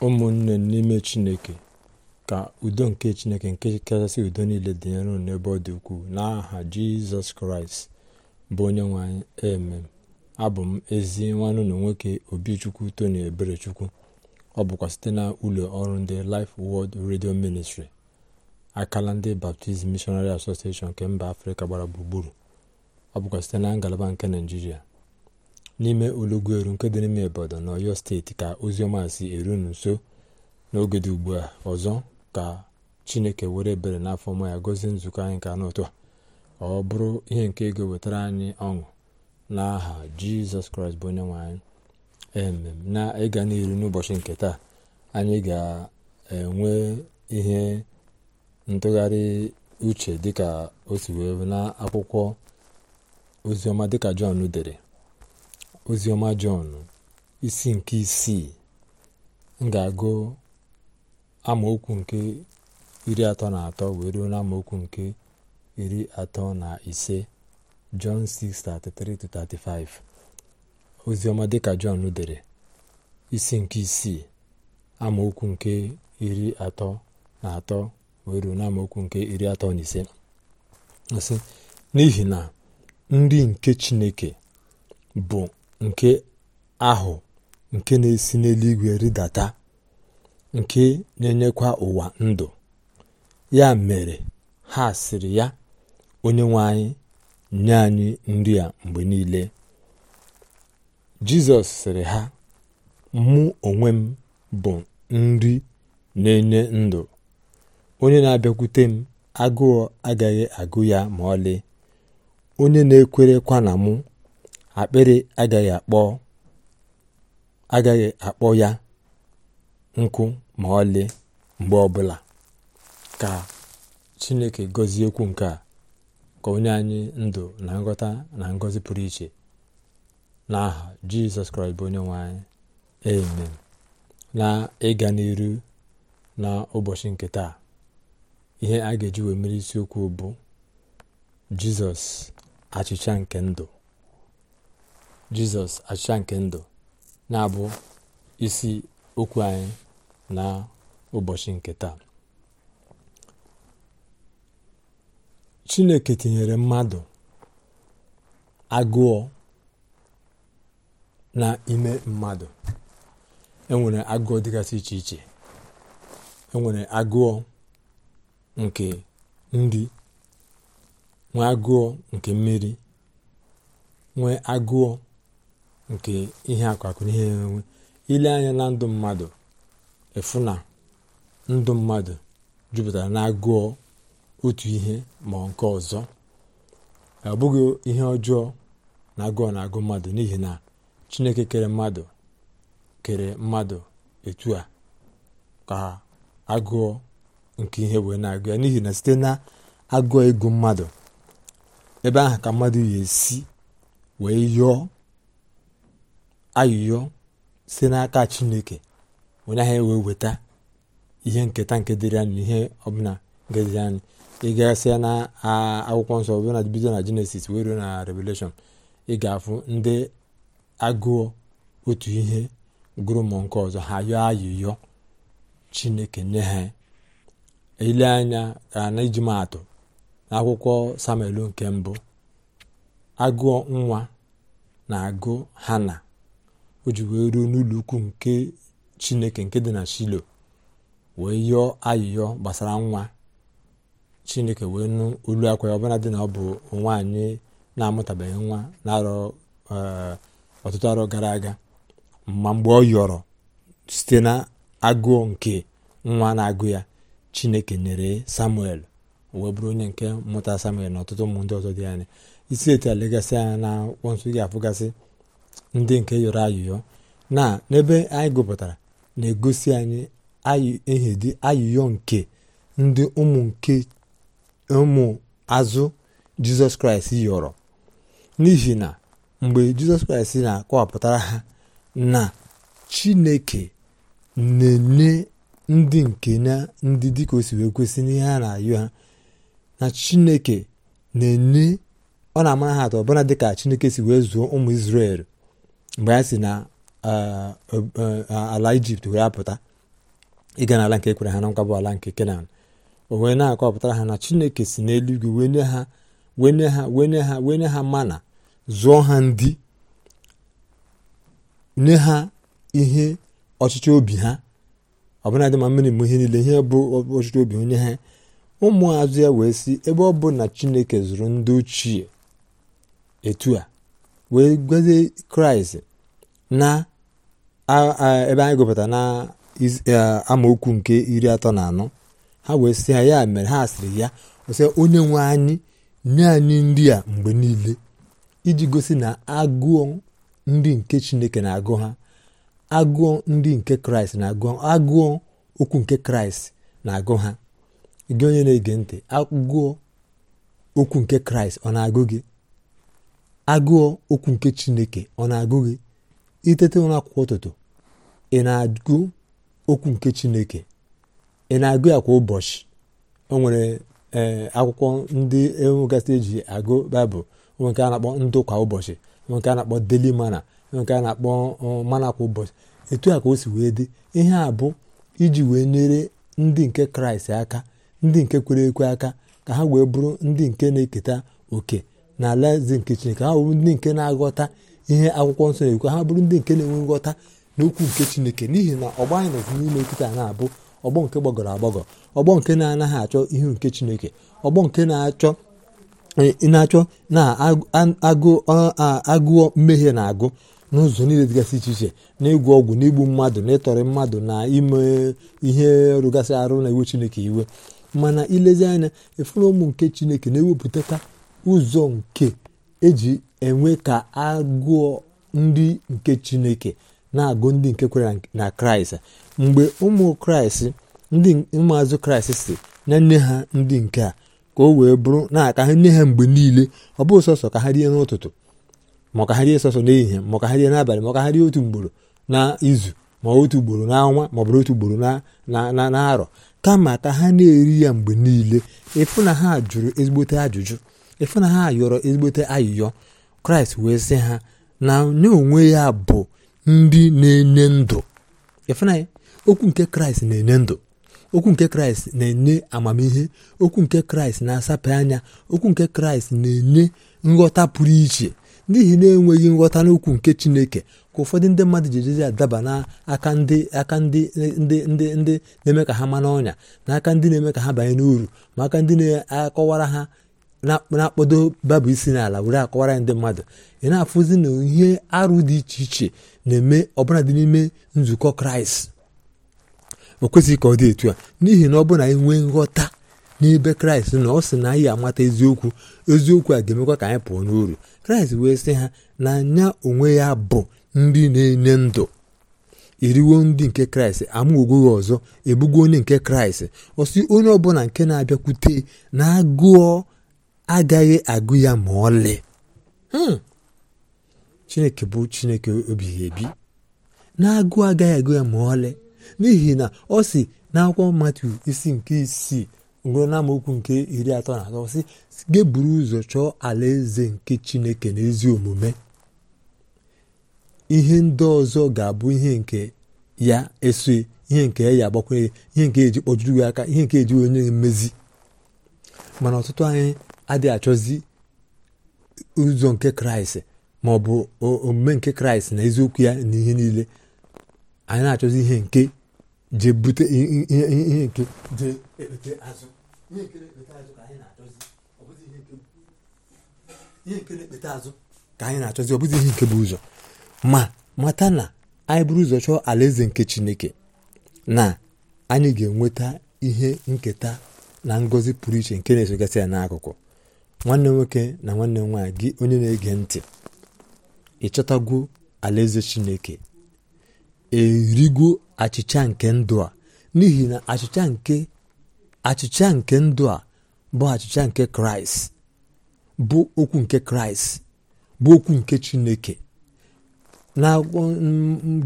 ụmụnne n'ime chineke ka udo nke chineke nke kachasị udo niile dị nro n'ebe ọ dị ukwuu n'aha jizọs kraịst bụ onye nwanyị eme abụ m ezi nwanne na nwoke obichukwu tony eberechukwu ọ bụkwa site na ụlọ ọrụ ndị Life wọld Radio Ministry akala ndị Baptist Missionary Association nke mba afrịka gbara gburugburu ọ bụkwa site na ngalaba nke naijiria n'ime olugweru nke dị n'ime ibadan na ọyọ steeti ka oziọma si erunu nso n'oge dị ugbu a ọzọ ka chineke were ebere n'afọ ma ya gozie nzukọ anyị ka n'ụtụ a ọ bụrụ ihe nke ego wetara anyị ọṅụ n'aha jizọs kraịst bụ onye nwe anyị emem na ịga n'iru n'ụbọchị nke taa anyị ga-enwe ihe ntụgharị uche dịka o si wee na akwụkwọ oziọma dịka jọn dere oziọma jọn isi nke isii m ga-agụ amaokwu nke iri atọ na atọ wee ruo na amaokwu nke iri atọ na ise jọn 6:33-35 oziọma dịka jọn dere isi nke isii amaokwu nke iri atọ na atọ wee ruo na amaokwu nke iri atọ na ise n'ihi na nri nke chineke bụ nke ahụ nke na-esi n'eluigwe rịdata nke na-enyekwa ụwa ndụ ya mere ha sịrị ya onye nwe anyị nye anyị nri a mgbe niile jizọs sịrị ha mụ onwe m bụ nri na-enye ndụ onye na-abịakwute m agụọ agaghị agụ ya ma ọlị onye na-ekwerekwa na mụ akpịrị agaghị akpọ ya nkụ ma ọlị mgbe ọbụla ka chineke gọzie okwu nke a ka onye anyị ndụ na nghọta na ngọzi pụrụ iche n'aha jizọs kraịst bụ onye nwanyị amen na ịga n'iru na ụbọchị nke taa ihe a ga-eji wee mere isiokwu bụ jizọs achịcha nke ndụ jizọs achịcha nke ndụ na-abụ isi okwu anyị na ụbọchị nke taa chineke tinyere mmadụ agụọ na ime mmadụ enwere agụọ dịgasị iche iche enwere agụọ nke nri nwee agụọ nke mmiri nwee agụọ nke ihe akwakụ ihe enwe ile anya na ndụ mmadụ efu na ndụ mmadụ jupụtara na agụọ otu ihe ma nke ọzọ ọ bụghị ihe ọjọọ na agụọ na agụ mmadụ n'ihi na chineke kere mmadụ kere mmadụ etu a ka agụọ nke ihe wee na-agụ ya n'ihi na site na agụọ ego mmadụ ebe ahụ ka mmadụ yi esi wee yọọ ayụyọ si n'aka chineke onye ahụ wee weta ihe nketa nke dịrị anyị ihe ọbụla ngeziri anyị ị gasịa na akwụkwọ nsọ ọbụla na bido na jenesis wee ruo na revelation ị ga-afụ ndị agụọ otu ihe gụrụ nke ọzọ ha yọọ ayụyọ chineke nye ha ile anya na iji maatụ samuel nke mbụ agụọ nwa na agụ hana o ji wee ruo n'ụlọ ukwu nke chineke nke dị na shilo wee yọọ ayịyọ gbasara nwa chineke wee nụ olu akwa ya ọbụla dị na ọ bụ nwaanyị na-amụtabeghị nwa na-arọ eh, ọtụtụ arọ gara aga ma mgbe ọ yọrọ site na agụụ nke nwa na-agụ ya chineke nyere samuel wee bụrụ onye nke mụta samuel na ọtụtụ ụmụ ndị dị anya isi etu a legasị anya na akwụkwọ ga-afụgasị ndị nke yọrọ ayụyọ na n'ebe anyị gụpụtara na-egosi anyị ehedi ayụyọ nke ndị ụmụ nke ụmụ azụ jizọs kraịst yọrọ n'ihi na mgbe jizọs kraịst na-akọwapụtara ha na chineke na-enye ndị nke na ndị dịka o si wee kwesị n'ihe a na-ayọ ha na chineke na-enye ọ na-amara ha atọ ọbụna dịka chineke si wee zụọ ụmụ Izrel mgbe ha si na ala ijipt wee apụta ịga n'ala nke ekwere ha na bụ ala nke kenan o wee na-akọpụtara ha na chineke si n'eluigwe wenye ha wenye ha wenye ha wenye ha mana zụọ ha ndị nye ha ihe ọchịchị obi ha ọbụladị ma mmiri mụ ihe niile ihe bụ ọchịchị obi onye ha ụmụazụ ya wee si ebe ọ bụ na chineke zụrụ ndị ochie etu a wee gọzie kraịst na ebe anyị gụpụta na e, amaokwu nke iri atọ na anọ ha wee sị ha ya mere ha sịrị ya ọsị onye nwe anyị nye anyị nri a mgbe niile iji gosi na agụọ ndị nke chineke na-agụ ha agụọ ndị nke kraịst na-agụ agụọ okwu nke kraịst na-agụ ha gị onye na-ege ntị agụọ okwu nke kraịst ọ na-agụ gị agụọ okwu nke chineke ọ na-agụ gị itete ụra kwa ụtụtụ ị na-agụ okwu nke chineke ị na-agụ ya kwa ụbọchị o nwere e, akwụkwọ ndị enwegasị eji agụ baịbụl nwe nke a na-akpọ ndụ kwa ụbọchị nwe nke a na-akpọ deli mana nwe nke a na-akpọ e, mana kwa ụbọchị etu a ka o si wee dị ihe a bụ iji wee nyere ndị nke kraịst aka ndị nke kwere ekwe aka ka ha wee bụrụ ndị nke na-eketa oke na alaeze nke chineke ha bụ ndị nke na-aghọta ihe akwụkwọ nsọ na-ekwu ha bụrụ ndị nke na-enwe nghọta n'okwu nke chineke n'ihi na ọgbọ anyị nọzi n'ime nkịta na-abụ ọgbọ nke gbagọrọ agbagọ ọgbọ nke na-anaghị achọ ihe nke chineke ọgbọ nke na-achọ e, na-achọ na agụọ mmehie na-agụ n'ụzọ niile dịgasị iche iche na-egwu ọgwụ na igbu mmadụ na ịtọrị mmadụ na ime ihe rụgasị arụ na iwe chineke iwe mana ilezi anya efere ụmụ nke chineke na-ewepụtaka ụzọ nke eji enwe ka agụọ ndị nke chineke na-agụ ndị nke kwere na kraịst mgbe ụmụ kraịst ndị ụmụazụ kraịst si na nne ha ndị nke a ka o wee bụrụ na-aka ha nne ha mgbe niile ọ bụghị sọsọ ka ha rie n'ụtụtụ ma ka ha rie sọsọ n'ehihie ma ka ha rie n'abalị ma ka ha rie otu mgboro na izu ma otu ugboro n'ọnwa ma ọ bụrụ otu ugboro na na-arọ kama ka ha na-eri ya mgbe niile ịfụ na ha jụrụ ezigbote ajụjụ ịfụ na ha yọrọ ezigbote ayịyọ kraịst wee sị ha na nye onwe ya bụ ndị na-enye ndụ okwu nke kraịst na-enye ndụ okwu nke kraịst na-enye amamihe okwu nke kraịst na-asape anya okwu nke kraịst na-enye nghọta pụrụ iche n'ihi na-enweghị nghọta n'okwu nke chineke ka ụfọdụ ndị mmadụ ji ejezi adaba n'aka ndị aka ndị ndị na-eme ka ha ma n'ọnya na aka ndị na-eme ka ha banye n'uru ma aka ndị na-akọwara ha na-akpọdo babụ isi n'ala were akọwara ndị mmadụ ị na-afụzi na ihe arụ dị iche iche na-eme ọbụla dị n'ime nzukọ kraịst o kwesịghị ka ọ dị etu a n'ihi na ọ bụrụ na anyị nwee nghọta n'ebe kraịst na ọ sị na anyị amata eziokwu eziokwu a ga-emekwa ka anyị pụọ n'uru kraịst wee sị ha na anya onwe ya bụ ndị na-enye ndụ eriwo ndị nke kraịst amụgwogoghị ọzọ ebugo onye nke kraịst ọsị onye ọbụla nke na-abịakwute na agụọ agaghị agụ ya ma ọlị hmm. chineke bụ chineke obighị ebi na-agụ agaghị agụ ya ma ọlị n'ihi na ọ si n'akwụkwọ mmatụ isi nke isii ruo n'amaokwu nke iri atọ na atọ si geburu ụzọ chọọ alaeze nke chineke na ezi omume ihe ndị ọzọ ga-abụ ihe nke ya eso ihe nke ya agbakwunye ihe nke eji kpọjuru gị aka ihe nke eji onye mmezi mana ọtụtụ anyị adịghị achọzi ụzọ nke kraịst ma ọ bụ omume nke kraịst na eziokwu ya na ihe niile anyị na-achọzi ihe nke je bute ihe nke je ekpete azụ ihe nke na-ekpete azụ ka anyị na-achọzi ọ bụzi ihe nke na-ekpete azụ ka anyị na-achọzi ọ bụzi ihe nke bụ ụzọ ma mata na anyị buru ụzọ chọọ alaeze nke chineke na anyị ga-enweta ihe nketa na ngọzi pụrụ iche nke na-esogasị ya n'akụkụ nwanne nwoke na nwanne m nwaanyị gị onye na-ege ntị gu alaeze chineke erigo achịcha nke ndụ a n'ihi na achịcha nke achịcha nke ndụ a bụ achịcha nke kraịst bụ okwu nke kraịst bụ okwu nke chineke n'akwụkwọ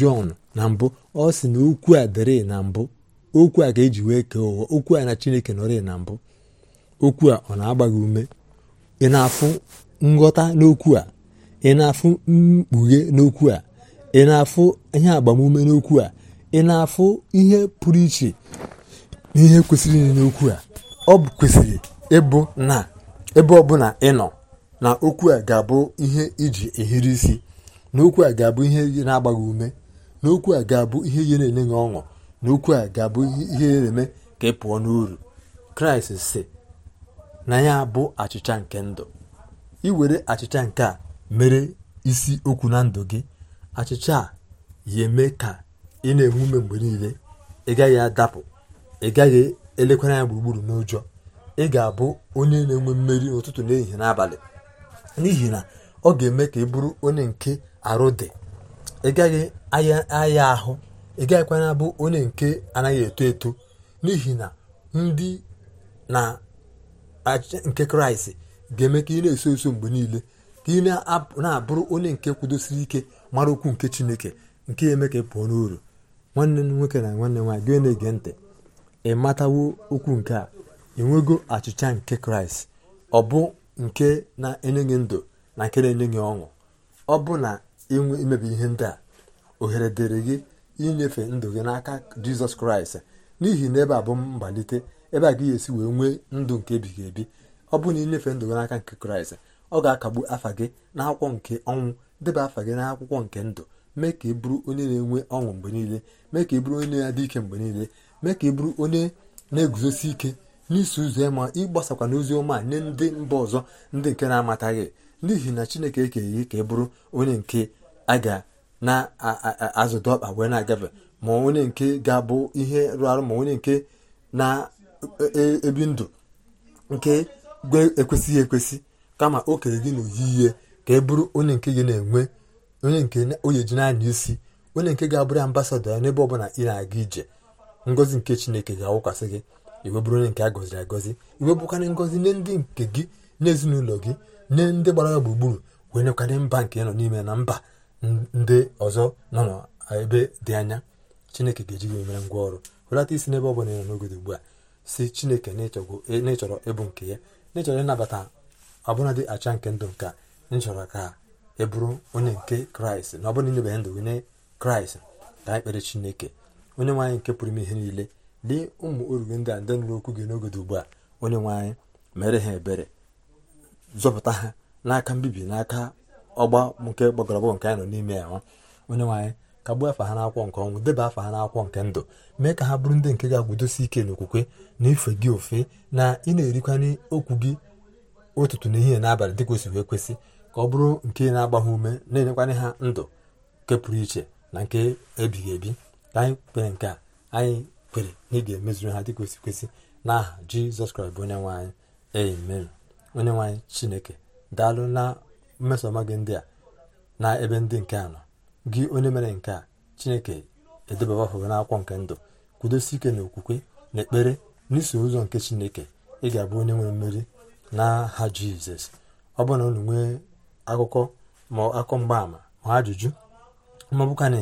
jọn na mbụ ọ sị na okwu a dịrị na mbụ okwu a ga-eji wee kee ụwa okwu a na chineke nọrị na mbụ okwu a ọ na-agba ume ị na-afụ nghọta n'okwu a ị na-afụ mkpughe n'okwu a ị na-afụ ihe agbamume n'okwu a ị na-afụ ihe pụrụ iche n'ihe ihe kwesịrị n'okwu a ọ kwesịrị ịbụ na ebe ọbụla ị nọ na okwu a ga-abụ ihe iji ehiri isi na okwu a ga-abụ ihe na-agbaghị ume na okwu a ga-abụ ihe ihe na-enye gị ọṅụ na okwu a ga-abụ ihe na-eme ka ị pụọ n'uru kraịst si na ya bụ achịcha nke ndụ were achịcha nke a mere isi okwu na ndụ gị achịcha a ya eme ka ị na-enwe ume mgbe niile ị gaghị adapụ ị gaghị elekwara ya gburugburu n'ụjọ ị ga-abụ onye na-enwe mmeri n'ụtụtụ n'ehihie n'abalị n'ihi na ọ ga-eme ka ị bụrụ onye nke arụ dị ị gaghị aya ahụ ị gaghịkwana abụ onye nke anaghị eto eto n'ihi na ndị na achịcha nke kraịst ga-eme ka ị na-eso eso mgbe niile ka ị na-abụrụ onye nke kwudosiri ike mara okwu nke chineke nke eme ka ị pụọ n'uru nwanne m nwoke na nwanne nwaanyị gị na-ege ntị ị matawo okwu nke a enwego achịcha nke kraịst ọ bụ nke na-enye gị ndụ na nke na-enye gị ọṅụ ọ bụ na ịnwe imebi ihe ndị a ohere dịrị gị inyefe ndụ gị n'aka jizọs kraịst n'ihi na ebe a bụ mbalite. ebe a ga esi wee nwee ndụ nke ebighị ebi ọ bụrụ na ịnyefe ndụ gị n'aka nke kraịst ọ ga-akagbu afa gị n'akwụkwọ nke ọnwụ deba afa gị akwụkwọ nke ndụ mee ka ị bụrụ onye na-enwe ọṅụ mgbe niile mee ka ị bụrụ onye na-adị ike mgbe niile mee ka ị bụrụ onye na-eguzosi ike n'isi ụzọ ya ma ịgbasakwa n'ozi ọma nye ndị mba ọzọ ndị nke na-amataghị n'ihi na chineke ekeghị ka ị bụrụ onye nke a ga na-azụdo ọkpa wee na-agafe ma onye nke ga-abụ ihe rụ arụ ma onye nke E, e, ebi ndụ nke ekwesịghị ekwesị kama o kere gị n'oyiyi ka e bụrụ onye nke gị na-enwe onye nke onye ji anya isi onye nke ga-abụrụ ambasado ya n'ebe ọbụla ị na-aga ije ngọzi nke chineke ga-awụkwasị gị iwe bụrụ onye nke a gọziri agọzi iwe bụkarị ngọzi nye ndị nke gị n'ezinụlọ gị nye ndị gbara ya gburugburu wee nyekarị mba nke nọ n'ime na mba ndị ọzọ nọ n'ebe dị anya chineke ga-eji gị mere ngwa ọrụ hụlata isi n'ebe ọbụla ị nọ n'ogodo ugbu a si chineke n'ịchọrọ e, ịbụ nke ya n'ịchọrọ ịnabata ọbụladị acha nke ndụ nke nchọrọ ka ị e bụrụ onye nke kraịst na ọbụla inyebeghị ndụ nye kraịst ka anyị kpere chineke onye nwaanyị nke pụrụ ime ihe niile dị ụmụ orughe ndị a ndị nụrụ okwu gị n'oge dị ugbu a onye nwaanyị mere ha ebere zọpụta ha n'aka mbibi n'aka ọgba nke gbagọrọgbọ nke anyị nọ n'ime ya onye nwaanyị kagbuo afa ha n'akwọ nke ọnwụ deba afa ha n'akwụkwọ nke ndụ mee ka ha bụrụ ndị nke ga-agwudosi ike n'okwukwe na ife gị ofe na ị na-erikwanye okwu gị ụtụtụ n'ehihie n'abalị dị kwesịrị ekwesị ka ọ bụrụ nke na-agba ha ume na-enyekwanye ha ndụ nke pụrụ iche na nke ebighị ebi ka anyị kwere nke a anyị kwere na ị ga-emezuru ha dị kwesị kwesị n'aha jizọs kraịst bụ onye nwe onye nwanyị chineke daalụ na mmesoma gị ndị a na ebe ndị nke a nọ gị onye mere nke a chineke edebawa afọ n'akwụkwọ nke ndụ kwudosi ike na okwukwe na ekpere n'iso ụzọ nke chineke ị ga-abụ onye nwere mmeri n'aha jizọs ọ bụrụ na unu nwee akụkọ ma akọ mgbaama ma ajụjụ ma na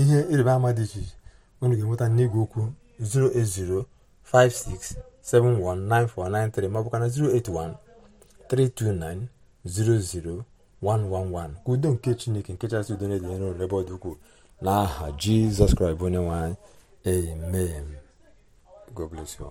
ihe ịrịba ama dị iche iche unu ga-enweta n'igwe okwu 08056719493 ma ọ 081 329 00 111 ka udo nke chineke nke chasị udo na edere n'ụlọ ebe ọ dị ukwuu n'aha jizọs kraịst onye nwanyị amen god bless you